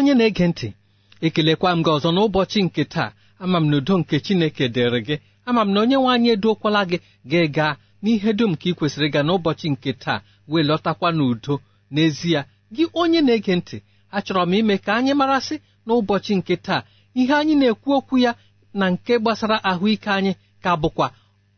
onye na-ege ntị ekelekwa m gị ọzọ n'ụbọchị nke taa ama m n'udo nke chineke dịrị gị ama m na onye nwe anyị eduokwala gị gị gaa n'ihe dum ka ị kwesịrị ịga n'ụbọchị nke taa wee lọtakwa n'udo n'ezie gị onye na-ege ntị achọrọ m ime ka anyị marasị n'ụbọchị nke taa ihe anyị na-ekwu okwu ya na nke gbasara ahụike anyị ka bụkwa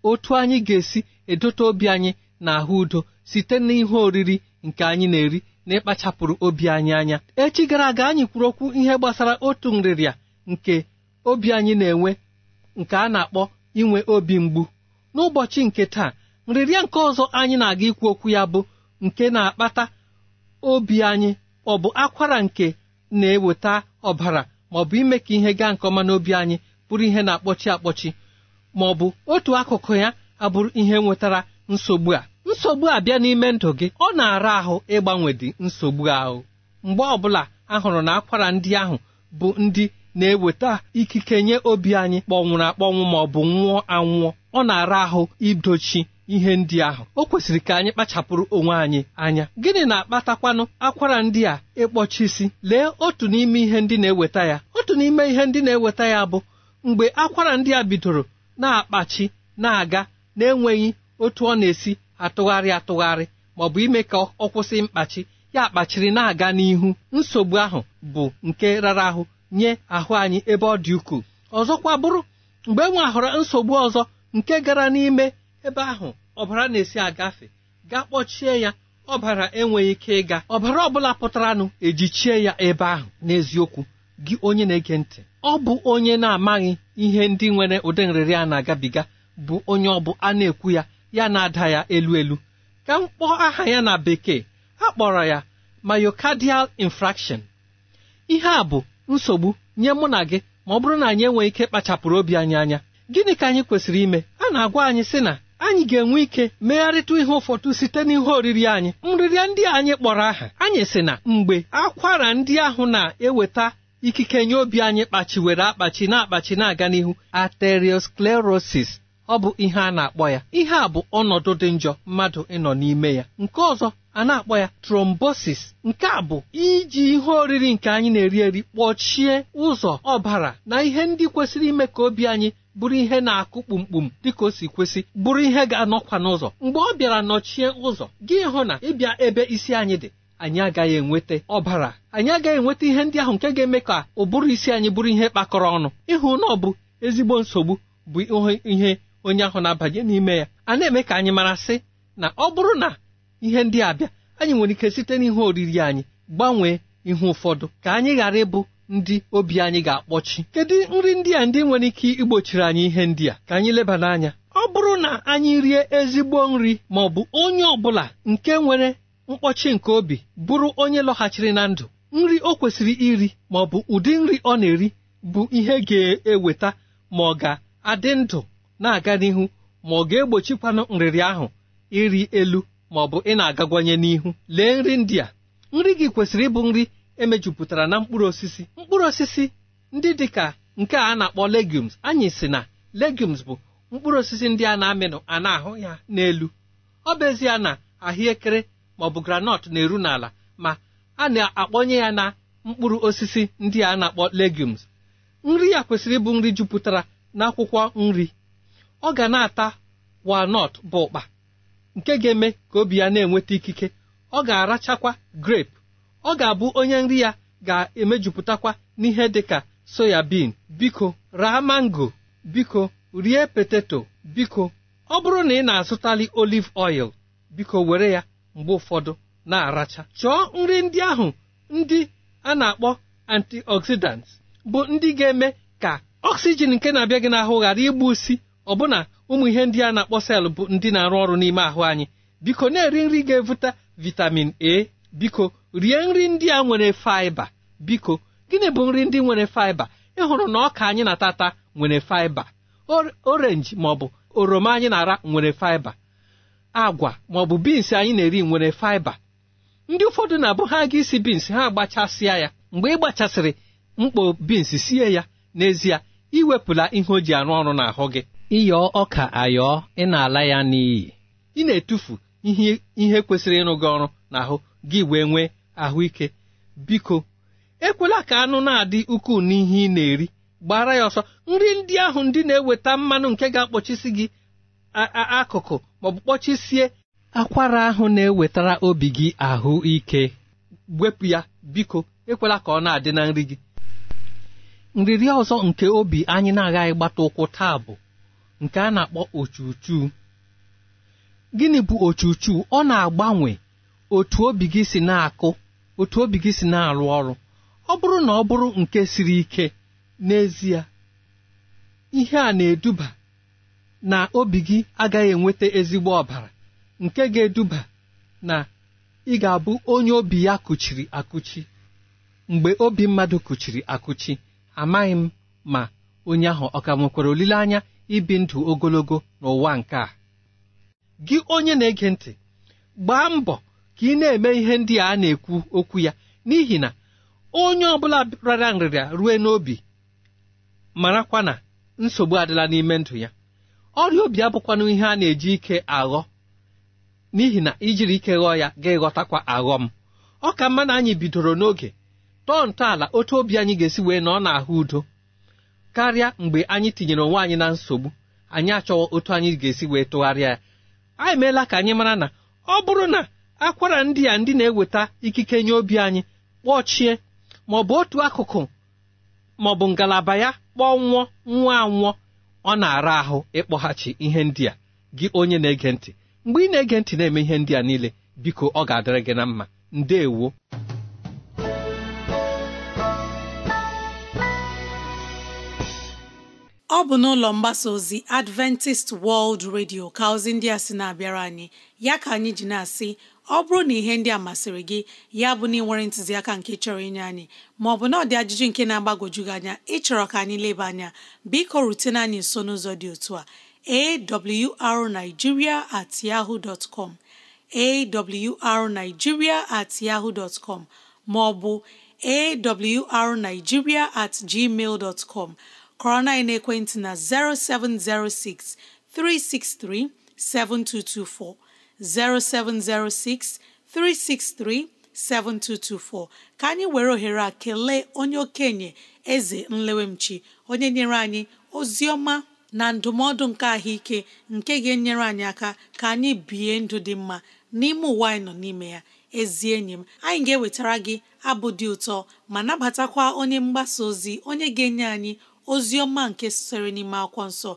otu anyị ga-esi edote obi anyị na ahụ udo site n'ihe oriri nke anyị na-eri na ịkpachapụrụ obi anyị anya echi gara aga anyị kwuru okwu ihe gbasara otu nrịrịa nke obi anyị na-enwe nke a na-akpọ inwe obi mgbu n'ụbọchị nke taa nrịrịa nke ọzọ anyị na-aga ikwu okwu ya bụ nke na-akpata obi anyị ọ bụ akwara nke na-eweta ọbara ma ọ bụ ime ka ihe gaa nke ọma n'obi anyị bụrụ ihe na-akpọchi akpọchi ma ọ bụ otu akụkụ ya abụrụ ihe nwetara nsogbu a nsogbu abịa n'ime ndụ gị ọ na-ara ahụ ịgbanwedị nsogbu ahụ mgbe ọbụla a hụrụ na akwara ndị ahụ bụ ndị na-eweta ikike nye obi anyị kpọnwụrụ akpọnwụ ma ọ bụ nwụọ anwụọ ọ na-ara ahụ idochi ihe ndị ahụ o kwesịrị ka anyị kpachapụrụ onwe anyị anya gịnị na-akpatakwanụ akwara ndị a ịkpọchisi lee otu n'ime ihe ndị na-eweta ya otu n'ime ihe ndị na-eweta ya bụ mgbe akwara ndị a bidoro na-akpachi na-aga na-enweghị otu ọ na-esi atụgharị atụgharị maọbụ ime ka ọ kwụsị mkpachi ya kpachiri na-aga n'ihu nsogbu ahụ bụ nke rara ahụ nye ahụ anyị ebe ọ dị ukwuu ọzọkwa bụrụ mgbe e ahụrụ nsogbu ọzọ nke gara n'ime ebe ahụ ọbara na-esi agafe ga kpọchie ya ọbara enweghị ike ịga ọbara ọ bụla pụtaranụ ejichie ya ebe ahụ n'eziokwu gị onye na-ege ntị ọ bụ onye na-amaghị ihe ndị nwere ụdị nrịrị a na-agabiga bụ onye ọ bụ a na-ekwu ya ya na-ada ya elu elu ka m kpọọ aha ya na bekee a kpọrọ ya myocardial infraction ihe a bụ nsogbu nye mụ na gị ma ọ bụrụ na anyị enweghị ike kpachapụrụ obi anyị anya gịnị ka anyị kwesịrị ime a na-agwa anyị sị na anyị ga-enwe ike megharịta ihe ụfọdụ site n'ihe oriri anyị nrịrịa ndị anyị kpọrọ aha anyị sị na mgbe akwara ndị ahụ na-eweta ikike nye obi anyị kpachiwere akpachi na-akpachi na-aga n'ihu arteriosclerosis ọ bụ ihe a na-akpọ ya ihe a bụ ọnọdụ dị njọ mmadụ ịnọ n'ime ya nke ọzọ a na-akpọ ya trombosis nke a bụ iji ihe oriri nke anyị na-eri eri kpọchie ụzọ ọbara na ihe ndị kwesịrị ime ka obi anyị bụrụ ihe na-akụ kpumkpum dịka o si kwesị bụrụ ihe ga-anọkwa n'ụzọ mgbe ọ bịara nọchie ụzọ gị hụ na ịbịa ebe isi anyị dị anyị agaghị enweta ọbara anyị agaghị enweta ihe ndị ahụ nke ga-eme ka ụbụrụ isi anyị bụrụ ihe kpakọrọ ọnụ ịhụ na ọ bụ ezigbo nsogbu bụ ihe onye ahụ na-abanye n'ime ya a na-eme ka anyị mara sị na ọ bụrụ na ihe ndị abịa anyị nwere ike site n'ihe oriri anyị gbanwee ihe ụfọdụ ka anyị ghara ịbụ ndị obi anyị ga-akpọchi kedu nri ndị a ndị nwere ike igbochiri anyị ihe ndị a ka anyị leba n'anya ọ bụrụ na anyị rie ezigbo nri ma ọ bụ onye ọ bụla nke nwere mkpọchi nke obi bụrụ onye lọghachiri na ndụ nri o kwesịrị iri ma ọ bụ ụdị nri ọ na-eri bụ ihe ga-eweta ma ọ ga-adị ndụ na-aga n'ihu ma ọ ga-egbochikwanụ nrịrị ahụ iri elu ma ọ bụ ị na-agagwanye n'ihu lee nri ndị a nri gị kwesịrị ịbụ nri emejupụtara na mkpụrụ osisi mkpụrụ osisi ndị dị ka nke a na-akpọ legumes anyị si na legumes bụ mkpụrụ osisi ndị a na-amịnụ a na-ahụ ya n'elu ọ bụ ezie na ahụekere ma ọ bụ granọt na-eru n'ala ma a na-akpọnye ya na mkpụrụ osisi ndị a na-akpọ legumes nri ya kwesịrị ịbụ nri jupụtara n'akwụkwọ nri ọ ga na-ata walnut bụ ụkpa nke ga-eme ka obi ya na-enweta ikike ọ ga-arachakwa grape ọ ga-abụ onye nri ya ga-emejupụtakwa n'ihe dịka bin biko raa mango biko rie peteto biko ọ bụrụ na ị na-azụtali olive oil biko were ya mgbe ụfọdụ na-aracha chọọ nri ndị ahụ ndị a na-akpọ antioxidants bụ ndị ga-eme ka oxygen nke na-abịa gị n'ahụ ghara igbu usi ọbụna ụmụ ihe ndị a na-akpọ sel bụ ndị na-arụ ọrụ n'ime ahụ anyị biko na-eri nri ga evuta vitamin a biko rie nri ndị a nwere faiba biko gịnị bụ nri ndị nwere faiba ịhụrụ na ọka anyị na-atata nwere faiba orenji maọbụ oroma anyị na-ara nwere faiba agwa maọbụ bins anyị na-eri nwere faiba ndị ụfọdụ na-abụ ha aga isi bins ha agbachasịa ya mgbe ị gbachasịrị mkpo bins sie ya n'ezie iwepụla ihe o ji arụ ọrụ n'ahụ gị ịyọ ọka ayọọ ị na-ala ya n'iyi ị na-etufu ihe kwesịrị ịrụ gị ọrụ n'ahụ gị wee nwee ahụike biko ekwela ka anụ na-adị ukwuu n'ihe ị na-eri gbara ya ọsọ nri ndị ahụ ndị na-eweta mmanụ nke ga-akpọchisi gị akụkụ maọbụ kpọchisie akwara ahụ na-ewetara obi gị ahụ ike wepụ ya biko ekwela ka ọ na-adị na nri gị nrịrị ọzọ nke obi anyị na-agaghị gbata ụkwụ taa bụ nke a na-akpọ ochuchu gịnị bụ ochuchu ọ na-agbanwe otu obi gị si na-akụ otu obi gị si na-arụ ọrụ ọ bụrụ na ọ bụrụ nke siri ike n'ezie ihe a na-eduba na obi gị agaghị enweta ezigbo ọbara nke ga-eduba na ị ga-abụ onye obi ya kụchiri akụchi mgbe obi mmadụ kụchiri akụchi amaghị m ma onye ahụ ọ ka nwekwara olileanya ibi ndụ ogologo n'ụwa nke a gị onye na-ege ntị gbaa mbọ ka ị na-eme ihe ndị a na-ekwu okwu ya n'ihi na onye ọbụla rara nrịrịa rue n'obi marakwa na nsogbu adịla n'ime ndụ ya ọrịa obi abụkwanụ ihe a na-eji ike aghọ n'ihi na ijiri ike ghọọ ya ga-ịghọtakwa aghọm ọ ka mma na anyị bidoro n'oge tọọ ntọala otu obi anyị ga-esi wee nọ n'ahụ udo karịa mgbe anyị tinyere onwe anyị na nsogbu anyị achọghị otu anyị ga-esi wee tụgharịa ya A meela ka anyị mara na ọ bụrụ na akwara ndị a ndị na-eweta ikike nye obi anyị kpọchie ma ọ bụ otu akụkụ ma ọ bụ ngalaba ya kpọnwụọ nwụọ anwụọ ọ na-ara ahụ ịkpọghachi ihe ndị a gị onye na-ege ntị mgbe ị na-ege ntị na-eme ihe ndị a niile biko ọ ga-adịrị gị na mma ndeewo ọ bụ n'ụlọ mgbasa ozi Adventist World Radio ka ozi ndị a sị na-abịara anyị ya ka anyị ji na-asị ọ bụrụ na ihe ndị a masịrị gị ya bụ na ịnwere ntụziaka nke chọrọ inye anyị maọbụ na ọ ajụjụ nke na-agbagwoju gị anya ịchọrọ ka anyị leba anya biko rutene anyị nso n'ụzọ dị otu a awrnigeria at yahoo dot com at yahoo dot com maọbụ awrnigeria at gmail dot com kọrọ na ekwentị na 0706 363 7224 0706 363 7224 ka anyị were ohere a kelee onye okenye eze nlewemchi onye nyere anyị ozi ọma na ndụmọdụ nke ahụike nke ga-enyere anyị aka ka anyị bie ndụ dị mma n'ime ụwa anyị nọ n'ime ya ezi enyi m anyị ga-ewetara gị abụ dị ụtọ ma nabatakwa onye mgbasa ozi onye ga-enye anyị ozi ọma nke sitere n'ime akwụkwọ nsọ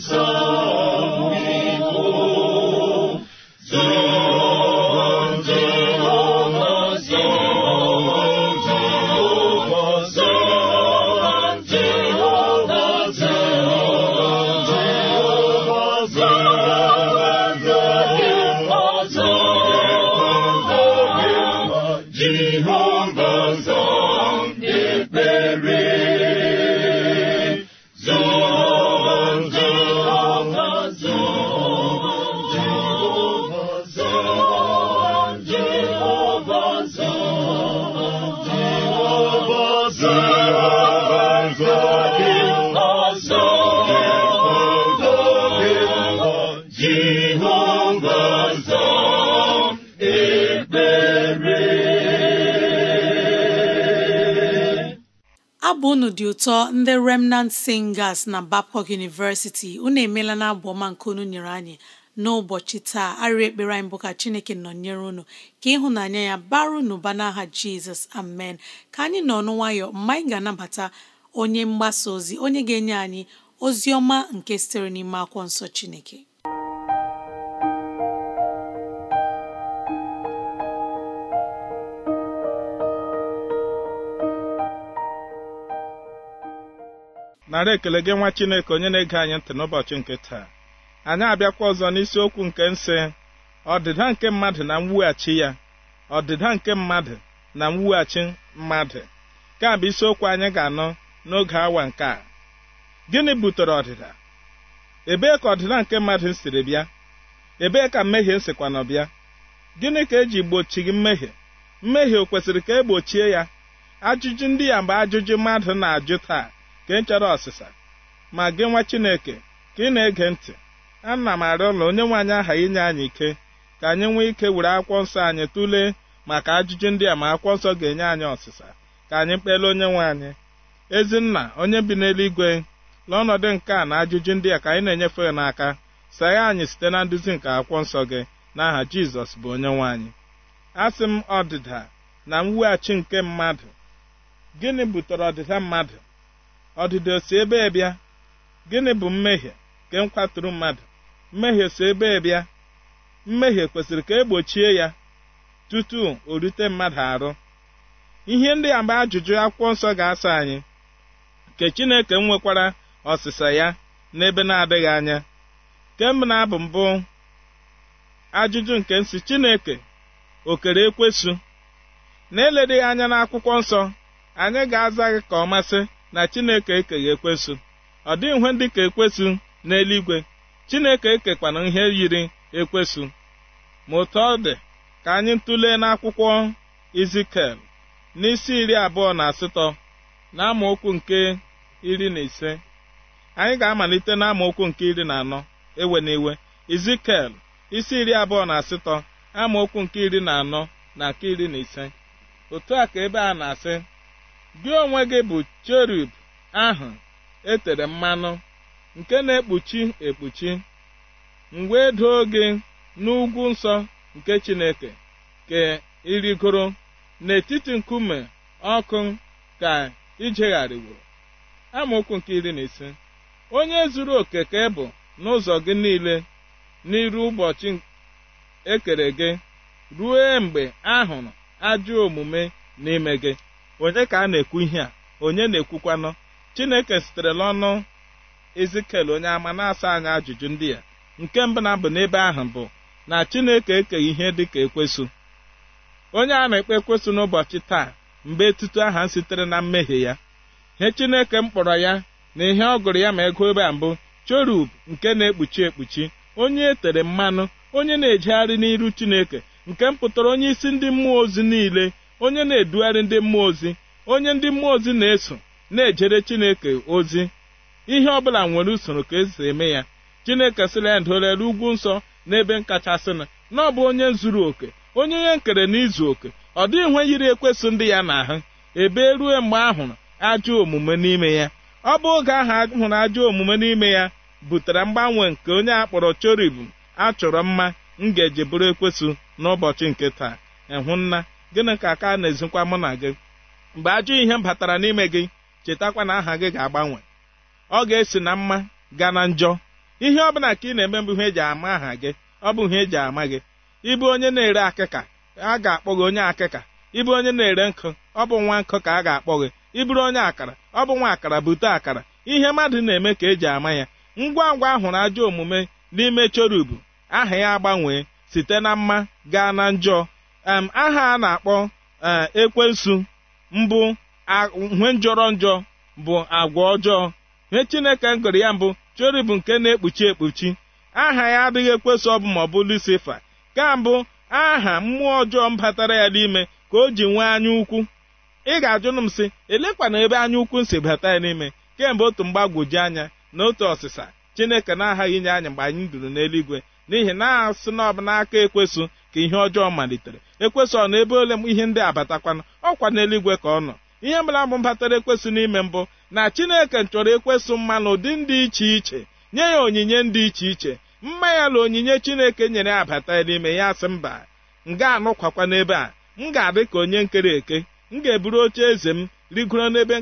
so. abụ unu dị ụtọ ndị remnant singers na Babcock University unu emeela na abụ ọma nke unu nyere anyị n'ụbọchị taa arịa ekpere anyị bụ ka chineke nọnyere unu ka ịhụnanya ya bara unu ba n'aha jizọs amen ka anyị nọ ọnụ nwayọ mgbe anyị ga-anabata onye mgbasa ozi onye ga-enye anyị ozi ọma nke sitere n'ime akwụkwọ nsọ chineke nara ekele gị nwa chineke onye na-ege anyị ntị n'ụbọchị nke taa anyị abịakwa ọzọ n'isiokwu nke nsị ọdịda nke mmadụ na mwughachi ya ọdịda nke mmadụ na mwughachi mmadụ nke a bụ isiokwu anyị ga-anọ n'oge awa nke a gịnị butere ọdịda ebee ka ọdịda nke mmadụ siri bịa ebee ka mmehie sikwa nọ bịa gịnị ka eji gị mmehie mmehie o kwesịrị ka e gbochie ya ajụjụ ndị ya bụ ajụjụ mmadụ na-ajụ taa ka ị ọsịsa ma gị nwa Chineke ka ị na-ege ntị ana m arịa ụlọ onye nwe anyị aha inye anyị ike ka anyị nwee ike were akwụkwọ nsọ anyị tụlee maka ajụjụ ndị a ma akwụkwọ nsọ ga-enye anyị ọsịsa ka anyị kpelee onye nwe anyị ezinna onye bi n'eluigwe n'ọnọdụ nke a na ajụjụ ndị a ka anyị na-enyefe n'aka saghe anyị site na nduzi nke akwụkwọ nsọ gị n'aha Jizọs bụ onye nwe anyị asị m ọdịda na mweghachi nke mmadụ gịnị butere ọdịda mmadụ ọdịdị si ebe bịa gịnị bụ mmehie nke nkwatụrụ mmadụ mmehie si ebe bịa mmehie kwesịrị ka egbochie ya tutu o rute mmadụ arụ ihe ndị agba ajụjụ akwụkwọ nsọ ga-asa anyị nke chineke nwekwara ọsịsa ya n'ebe na-adịghị anya kemgbe na-abụ mbụ ajụjụ nke nsị chineke okere ekwesu na-eledeghị anya n'akwụkwọ nsọ anyị ga-aza gị ka ọ masị na chineke ekeghị ekwesu ọ dịghị nwe ndị ka ekwesu n'eluigwe chineke ekekwana ihe yiri ekwesu ma otu ọ dị ka anyị tụlee n'akwụkwọ izikel n'isi iri abụọ na asatọ na amaokwu nke iri na ise anyị ga-amalite na amaokwu nke iri na anọ ewe na iwe izikel isi iri abụọ na asatọ amaokwu nke iri na anọ na nke iri na ise otu a ka ebe a na-asị gị onwe gị bụ cherub ahụ etere mmanụ nke na-ekpuchi ekpuchi mgbe e doo gị n'ugwu nsọ nke Chineke ka ịrịgoro n'etiti nkume ọkụ ka ijegharịworo amaokwu nke iri na ise onye zuru oke ka ịbụ e bụ n'ụzọ gị niile n'iru ụbọchị ekere gị ruo mgbe ahụrụ ajọ omume n'ime gị onye ka a na-ekwu ihe a onye na-ekwukwanụ chineke sitere n'ọnụ ezikel onye ama na-asa anya ajụjụ ndị ya nke mbụ na mbụ n'ebe ahụ bụ na chineke ekeghị ihe dị ka ekwesụ onye a na-ekpe ekwesụ n'ụbọchị taa mgbe etutu aha sitere na mmehie ya ihe chineke m kpọrọ ya na ihe ọ gụrụ ya ma ego ebe a mbụ chorub nke na-ekpuchi ekpuchi onye e tere mmanụ onye na-ejegharị n'iru chineke nke m pụtara onye isi ndị mmụọ ozi niile onye na-edugharị ndị mmụọ ozi onye ndị mmụọ ozi na-eso na-ejere chineke ozi ihe ọbụla nwere usoro ka esi eme ya chineke sịrị ya dolere ugwu nsọ n'ebe nkachasị na ọ bụ onye zuru oke onye ihe nkere na izu oke ọ dịghị nwe yiri ekwesị ndị ya na ahụ ebe rue mgbe ahụ ajọ omume n'ime ya ọ bụ oge ahụ ahụrụ ajọ omume n'ime ya butere mgbanwe nke onye akpọrọ chorib a chọrọ mma ngaji bụrụ ekwesị n'ụbọchị nke taa ehụnna gịnị ka aka na-ezikwa mụ na gị mgbe ajọ ihe batara n'ime gị chetakwa na aha gị ga-agbanwe ọ ga-esi na mma gaa na njọ ihe ọ bụla ka ị na-eme mbụ ihe eji ama aha gị ọ bụ ihe eji ama gị ịbụ onye na-ere akịka a ga-akpọ gị onye akịka ịbụ onye na-ere nkụ ọ bụ nwa nkụ ka a ga-akpọ gị ịbụrụ onye akara ọ bụ nwa akara bute akara ihe mmadụ na-eme ka eji ama ya ngwa ngwa ahụrụ ajọ omume n'ime chorubu aha ya agbanwee site na mma gaa na njọ aha a na-akpọ e, ekwensu mbụ ihe njọrọ njọ bụ agwa ọjọọ ihe chineke ngụrụ ya mbụ chori bụ nke na-ekpuchi ekpuchi aha ya adịghị ekwesị ọbụ ma ọ bụ lucifer ka mbụ aha mmụọ ọjọọ batara ya n'ime ka o ji nwee anya ukwu ị ga-ajụnụ m sị elekwana ebe anya ukwu si bata ya n'ime kemgbe otu mgbagwoju anya na otu ọsịsa chineke na-aghaghị inye anya mgbe anyị duru n'eluigwe n'ihi na asị na ọbụ n'aka ekwesụ ka ihe ọjọọ malitere ekwesị ọ na ebe ole m ihe ndị abatakwana ọkwa n'eluigwe ka ọ nọ ihe mara m batara ekwesị n'ime mbụ na chineke chọrọ ekwesị mmanụ ụdị ndị iche iche nye ya onyinye ndị iche iche mma ya na onyinye chineke nyere abata n'ime ya sị mba m ga-anọkwakwa n'ebe a m ga-adị ka onye nkere eke m ga-eburu oche eze m rigoro n'ebe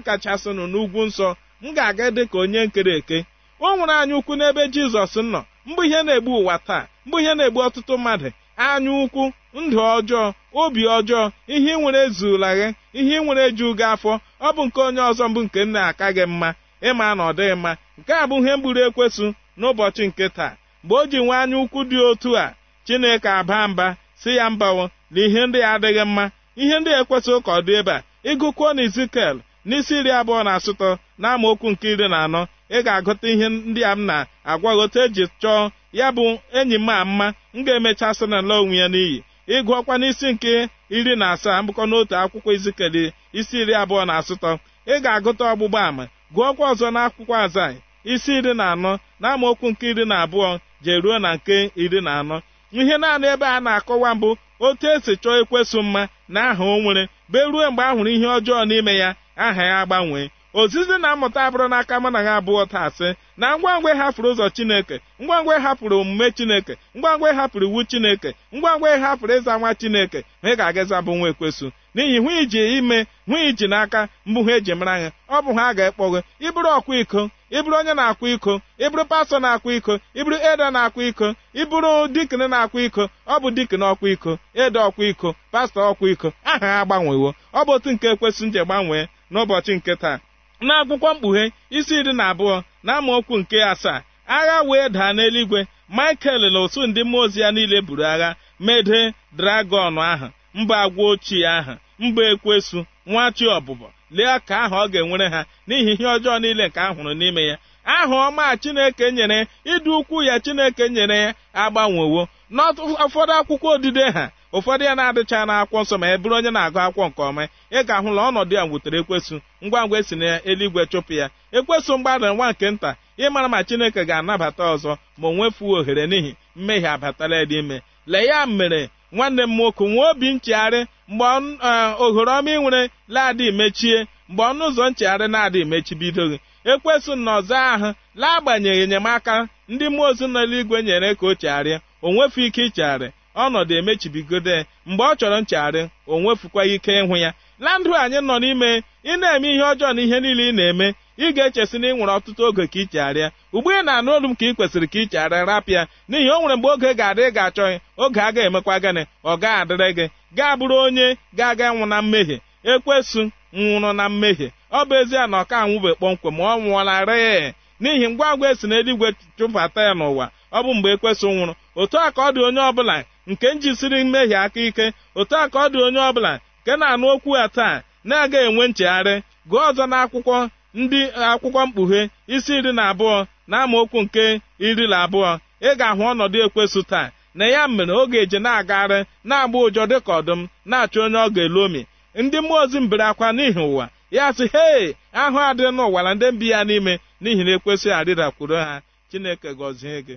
nọ n'ugwu nsọ m ga-aga dị ka onye nkere eke o nwere anya ukwu n'ebe jizọs nọ mgbe ihe na-egbu ụwa taa mgbe ihe na-egbu ọtụtụ mmadụ anya ukwu ndụ ọjọọ obi ọjọọ ihe ị nwere zula gị ihe nwere ju gị afọ ọ bụ nke onye ọzọ mbụ nke nna aka gị mma ịma na ọ dịghị mma nke a bụ ihe mgburu ekwesụ n'ụbọchị nke taa mgbe o ji nwe anya ukwu dị otu a chineke aba mba si ya mbawo na ihe ndị adịghị mma ihe ndị ekwesịghị ụka ọ dị ebe a ịgụkwuo na izikel n'isi iri abụọ na asụtọ na nke iri na anọ ị ga-agụta ihe ndị a m na-agwaghọta eji chọọ ya bụ enyi m ama m ga-emecha sị na ala onwe ya n'iyi ịgụ ọkwa n'isi nke iri na asaa mbụkọ n'otu akwụkwọ izikeli isi iri abụọ na asatọ ị ga-agụta ọgbụgba ama gụọkwa ọzọ na akwụkwọ azai isi iri na anọ na okwu nke iri na abụọ jee ruo na nke iri na anọ ihe naanị ebe a na-akọwa mbụ otu esi chọọ ekwesụ mma na aha o nwere be ruo mgbe a hụrụ ihe ọjọọ n'ime ya aha ya gbanwee ozizi na mmụta abụrụ n'aka mụ na ha abụọ taa sị na ngwa ngwa ịhapụrụ ụzọ chineke ngwa ngwa hapụrụ omume chineke ngwa ngwa hapụrụ iwu chineke ngwa ngwa hapụrụ ịza nwa chineke ma ị ga-agaza bụ nwa ekwesụ n'ihi hụ iji ime hụ iji n'aka mbụ ha eji mara ha ọ bụ ha ga-ekpọ gị ịbụrụ ọkwa iko ịbụrụ onye na-akwa iko ịbụrụ pastọ na-akwa iko ịbụrụ ede na-akwa iko ịbụrụ dikin na-akwa iko ọ bụ dikin ọkwa iko ede ọkwa iko pastọ ọkwa iko aha ha agbanwewo ọ bụ otu nke ekwesị nje gbanwee n'ụbọchị nke taa n'akwụkwọ mkpughe isi iri na abụọ na amaokwu nke asaa agha wee daa n'eluigwe michael na otu ndị mmụọ ozi ya niile buru agha mede dragọn ahụ mba agwa ochie ahụ mba ekwesu nwa chi ọbụbọ lee ka aha ọ ga-enwere ha n'ihi ihe ọjọọ niile nke a hụrụ n'ime ya aha ọma chineke nyere ịdị ukwu ya chineke nyere ya agbanwewo n'ụfọdụ akwụkwọ odide ha ụfọdụ ya na-adịcha n'akwụkwọ nsọ ma e bụrụ onye na-agụ akwụkwọ nke ọma ị ga-ahụ na ọnọdụ ya nwutere ekwesụ ngwa ngwa esi na eluigwe chụpụ ya ekwesụ mgbada nwa nke nta ịmara ma chineke ga-anabata ọzọ ma o nwefuo ohere n'ihi mmehie abatala ime lee ya mere nwanne m nwoke nwee obi nchegharị mgbe e, ohere ọma ị nwere laadị mechie mgbe ọnụ ụzọ nchegharị na-adị emechibidoghị ekwesu na ọzọ ahụ laagbanyeghị enyemaka ndị mmụọ ozi n'eluigwe nyere ka o chegharịa o nwefu ike ichegharị ọnọdụ emechibigode mgbe ọ chọrọ nchegharị o nwefukwa ike ịhụ ya na anyị nọ n'ime ị na-eme ihe ọjọọ na ihe niile ị na-eme ị ga-echesi na ị nwere ọtụtụ oge ka ị chegharịa ugbu ị na-anụ olu m ka ị kwesịrị ka ị rapịa n'ihi o nwere mgbe oge ga-adị ị ga-achọghị oge a ga-emekwa gịnị ọ ga-adịrị gị gaa bụrụ onye ga-aga nwụ na mmehie ekwesu nwụrụ na mmehie ọ bụ ezie na ọ ka anwụbe kpọmkwem ma ọ nwụọlarịị n'ihi ngwa ngwa esi n'eluigwe chụbata ya n'ụwa ọ bụ mgbe ekwesị nwụrụ otu a ka ọ dị onye ọbụla nke njisiri mmehie aka ike otu a ka ọ dị onye ọbụla nke na-anụ okwu ya taa na-aga enwe nchegharị gụọ ọzọ n'akwụkwọ ndị akwụkwọ mkpughe isi iri na abụọ na amaokwu nke iri na abụọ ị ga-ahụ ọnọdụ ekwesu taa na ya mere oge eje na-agagharị na-agba ụjọ dịka ọdụm na-achọ onye ọ ga omi ndị mmụọ ozi mbere akwa n'ihi ụwa ya sị hei ahụ adịrị n'ụwa na ndị mbi ya n'ime n'ihi na ekwesịghị arịdakwuru ha chineke gọzie gị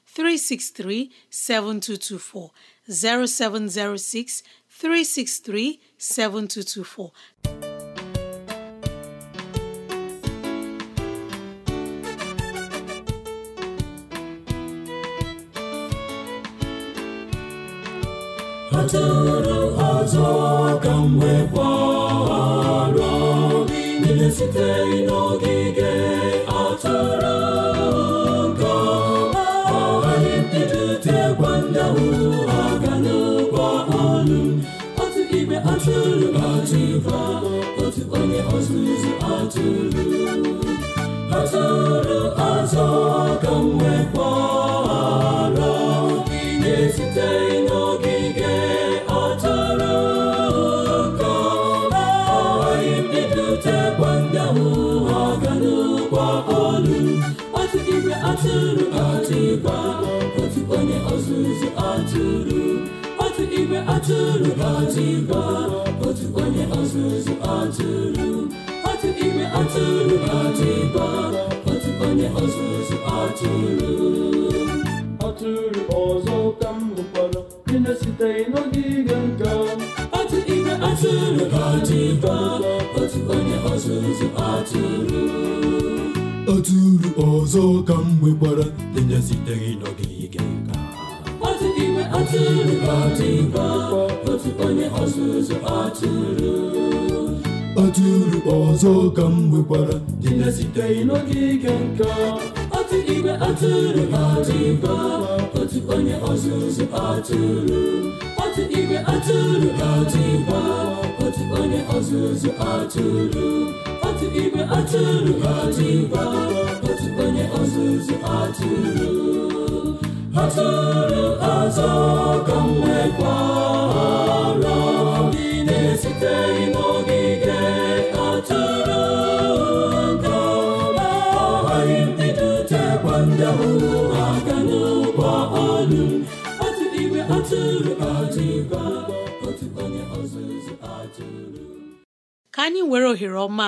363 7224 0706 363 7224 ọ tụrụ ọzọ ka m wee kwara obi niile sitere n'ogige atụrụ atụkwa otu onye ọzụzụ atụrụ atụrụ azọ ka m nwekwaa atụrụ otu igwe otu onye ọzụzụ atụrụ otu ime atụrụ otu otu onye ọzụzụ atụrụ ọzọ ka m hụkwara otu ime atụrụ otu igwe otu onye ọzụzụ ọzọ ka m nwekwara ndị na n'ogige otu onye ọzụzụ ọzọ ka m nwekwara na n'ogige nka otu igwe atụrụ atụba otu onye ọzụzụ atụrụ otu igwe atụrụ otu onye ọzụzụ atụrụ otu igwe atụrụ otu ọzụzụ atụrụ Oturu ọzọ ka m nwekwara ndị na n'ogige ndị n'ụgbọ otu igwe otu onye ọzụzụ atụrụ ka anyị were ohere ọma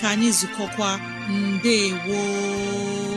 ka anyị zukọkwa mbe woo